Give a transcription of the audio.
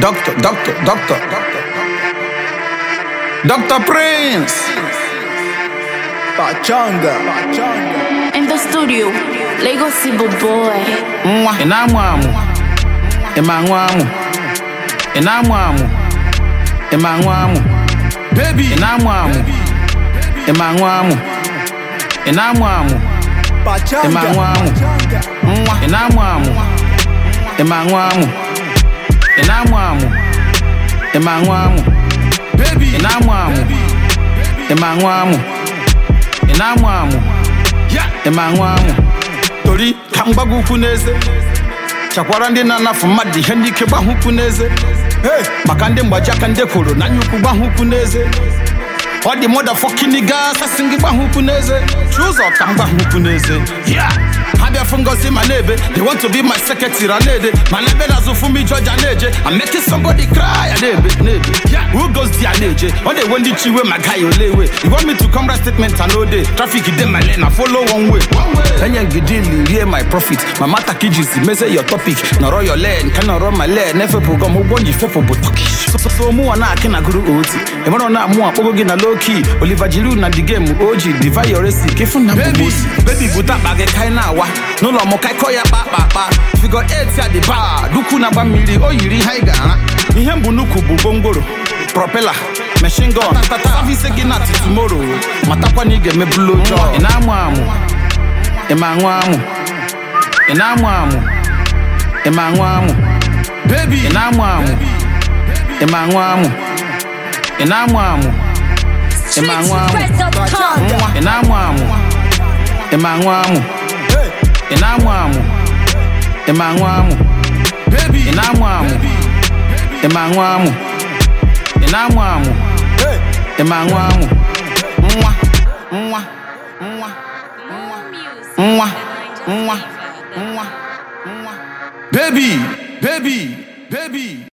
Doctor, doctor, doctor, doctor. Doctor Prince. Pachanga. Pachanga. In the studio, Lego Sibo Boy. Mwa, inamuamu. Imanwamu. Inamuamu. Imanwamu. Baby. Inamuamu. Imanwamu. Inamuamu. Pachanga. Imanwamu. Mwa, ị ma aṅụ amụ ị na-amụ amụ ị ma aṅụ amụ ị na-amụ amụ ị ma aṅụ amụ ị na-amụ amụ ị ma aṅụ amụ tori ka m gbago ukwu n'eze chakwara ndị na-anafu mmadụ ihe ndị ike gbahụ ukwu n'eze ee maka ndị mgbaji aka ndị kwuru na anya ukwu gbahụ ukwu n'eze ọ dị mọda fọkiniga asasị gị gbahụ ukwu n'eze chi ụzọ ka m gbahụ ukwu n'eze abịa fụ ngozi ma na-ebe they want to be my secretary na-ede ma na ebe na-azụ fụ I'm making somebody cry ya na-ebe who goes there na-eje ọ na-ewe my guy iwe ma gaghị you want me to come write statement and ode traffic dey my lane na follow one way one way ngidi ili rie my profit my mata ka iji si meze your topic nọrọ your lane ka nọrọ my lane efepụgo m ụgwọ nji fepụ bụ sọsọsọ mụnwa na-akị na gụrụ oti ịmara na mụ akpọgo gị na loki oliva jiru na di gemu oji diva yoresi kefu na bụbosi bebi bute akpa gị kaị na-awa n'ụlọ m kaịkọ ya kpa akpa akpa figo et a dị baa duku na-agba mmiri o yiri haiga anyị ihe mbụ nnukwu bụ gwongworo propela machine gun service gị na tumoro matakwa na ị ga-emebulu ojo ị na-amụ amụ ị ma aṅụ amụ ị na-amụ amụ ị ma aṅụ amụ ị na-amụ amụ Ị ma amụ? Ị na-amụ amụ? Ị ma amụ? Ị na-amụ amụ? Ị ma nwa amụ? Ị na-amụ amụ? Ị ma amụ? Ị Baby, baby, baby.